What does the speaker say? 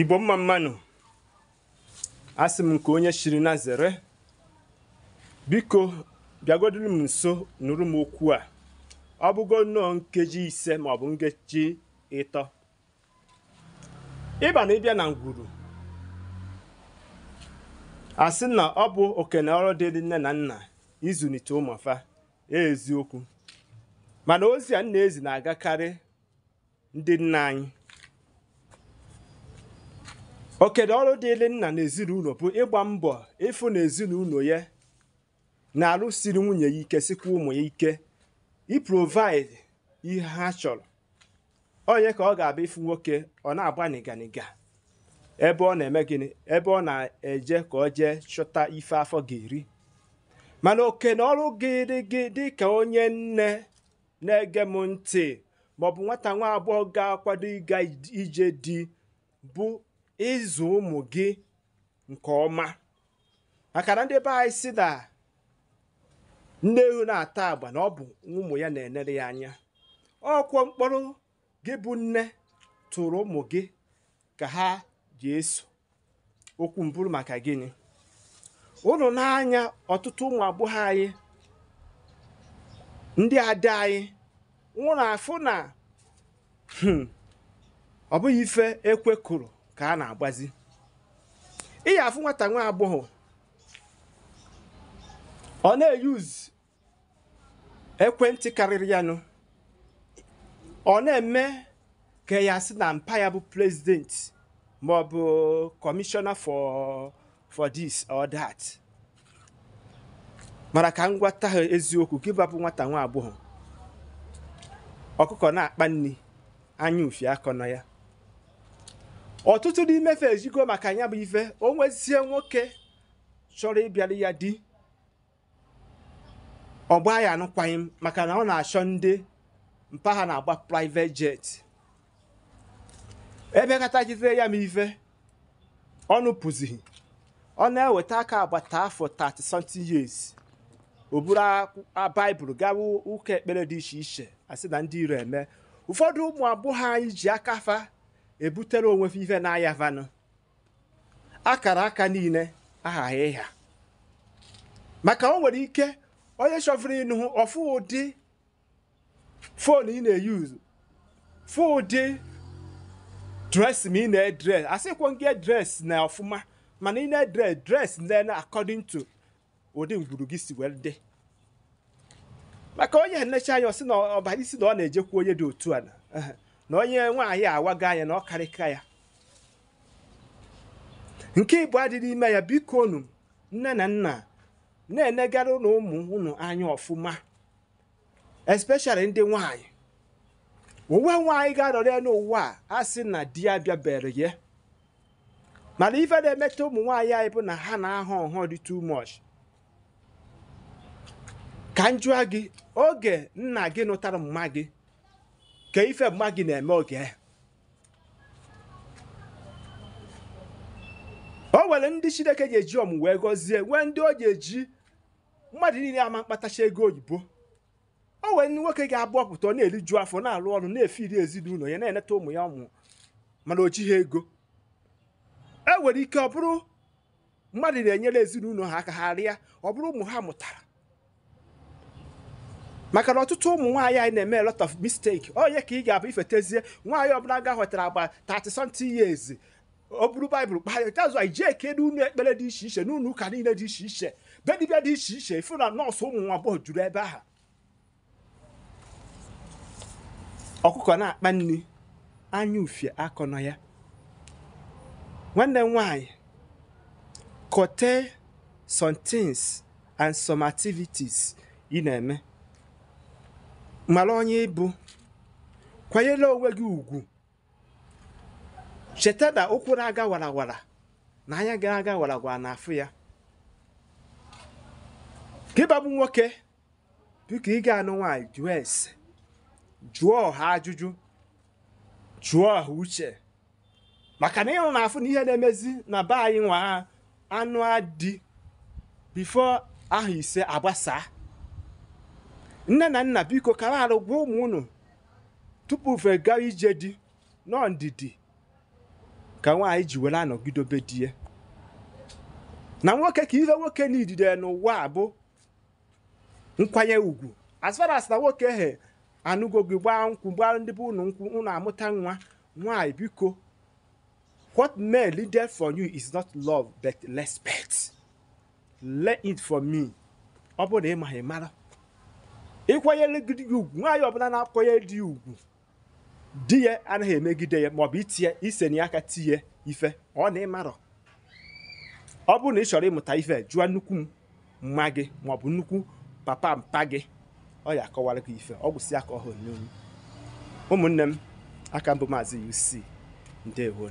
igbo mma mmanụ asị m nke onye shiri na zere biko bịagodiri m nso nụrụ m okwu a ọ bụgo nnọọ nkeji ise maọbụ nkeji ịtọ ịba na ịbịa na ngwuru asị na ọ bụ okene ọrụ dị nne na nna izụlite ụmụfa e eziokwu mana ozi a nna ezi na-agakarị ndị nna anyị okedo ọrụ dịịrị nna n'ezinụlọ bụ ịgba mbọ ịfụ na ezinụlọ ya na-alụsiri nwunye ya ike sikwa ụmụ ya ike iprovaịdị ihe ha chọrọ onye ka ọ ga-abịa ịfụ nwoke ọ na-agba nịganiga ebe ọ na-eme gịnị ebe ọ na-eje ka ọ jee chọta ife afọ ga-eri mana oke na ọrụ gịrị gị dị ka onye nne na-ege m ntị maọbụ nwata nwa agbọghọ ga-akwado ịga ije di bụ ịzụ ụmụ gị nke ọma maka na ndị be anyị si na nne ewu na-ata agba na ọ bụ ụmụ ya na-enere ya anya ọkwọ mkpọrọ gị bụ nne tụrụ ụmụ gị ka ha ji eso okwu mbụrụ maka gịnị ụnụ n'anya ọtụtụ ụmụ agbọghọ anyị ndị ada anyị nwụrụ afụ na hmm, ọ bụghị ife ekwe kụrụ ka a na-agbazi ị ya afụ nwata nwa agbọghọ ọ na-eyuzu ekwentị karịrị ya nụ ọ na-eme ka ya sị na mpa ya bụ president ma ọ bụ commissioner for for this or that mara ka m gwata ha eziokwu gị babụ nwata nwa agbọghọ ọkụkọ na-akpa nri anya ufi akọ na ya ọtụtụ n'ime fe ejigo maka ya bụ ife o nwezie nwoke chọrọ ịbịara ya di ọ gbaa ya anụkwaghị maka na ọ na-achọ ndị mpaghara na-agba private jet ebe kata jidere ya m ife ọnụ pụzighị ọ na-eweta aka agbata afọ 30 something years o buru baịbụl gawa ụka ekpere dị iche iche asị na ndị iro eme ụfọdụ ụmụ agbọghọ anyị ji aka ebutere onwe ife na-aya vanụ akara aka niile aghaghị ịha maka o nwere ike onye chọvụrụ ịnụ ọfụ ụdị fon ị na-eyuzu fụ ụdị dres ma ị na-edres asịkwo nke dres na ọfụma mana ị na-edres dres na according to ụdị ngwuru gị si wee dị maka onye nlecha anya ọ sị na ọbara isi na ọ na-ejekwa onye dị otu a na. na onye nwaanyị awago anya na ọ karịka ya nke ịbụ adịghị ime ya biko unu nne na nna na-enegara na ụmụ unu anya ọfụma especially ndị nwaanyị onwe nwaanyị ga-arọrọ ya n'ụwa a sị na di ya bịabere ya mana ife na-emeta ụmụ nwaanyị anyị bụ na ha na-ahọ nhọ dị too much ka m jụọ gị oge nna gị nụtara mma gị ka ife mma gị na-eme oge o nwere ndị chineke ga eji ọmụ wee gọzie nwee ndị o ji eji mmadụ niile ama mkpatacha ego oyibo o nwere ndị nwoke ga-abụ ọpụta ọ na-eriju afọ na-alụ ọrụ na-efiri ezinụlọ ya na-eneta ụmụ ya ọmụ mana o jighị ego e nwere ike ọ bụrụ mmadụ na-enyere ezinụlọ ha aka ha rịa ọ bụrụ ụmụ ha mụtara maka na ọtụtụ ụmụ nwaanyị anyị na-eme a lot of mistake onye ka ị ga-abụ ifetezie nwaanyị ọbụla ga-ahọtara agba 30 something years o buru baịbụl kpaa anyị ijee kedu unu ekpere dị iche iche n'unu ụka niile dị iche iche be dị iche iche ifu na nọọsụ ụmụ nwa agbọghọ juru ebe ahụ ọkụkọ na-akpa nri anya ufie akọ na ya nwanne m nwaanyị kote some and some activities ị na-eme mara onye ịbụ kwanyere onwe gị ugwu cheta na ụkwụ na-aga warawara na anya gara aga warawara na afụ ya ka nwoke biko ị ga-anụ nwaanyị jụọ ese jụọ ọha ajụjụ jụọ ọha uche maka na ịhụ na afụ na ihe na-emezi na be anyị nwa anụ adị bifo ahụ ise agbasaa nne na nna biko kara arụ gwa ụmụ unu tupu ufe ije di nọọ ndidi ka nwaanyị ji were anọgidobe di ya na nwoke ka ire nwoke n'idide n'ụwa a bụ nkwanye ugwu as far as na nwoke he anụgo gị gbaa nkwụ gbaa ndị bụ ụnụ nkwụ unu amụta nwa nwaanyị biko what may lead for you is not love but respect learn it for me ọ bụrụ na ị mara ịkwanyere gị ugwu nwaanyị ọbụla na-akwanyere di ya ugwu di ya anaghị emegide ya maọbụ itinye na aka tinye ife ọ na ịmarọ ọ bụrụ na ị chọrọ ịmụta ife jụọ nnukwu mma gị maọbụ nnukwu papa mpa gị ọ ya akọwara gị ife ọ gwụsị aka ọhụrụ n'olu ụmụnne m aka mbụ maazị UC ndewo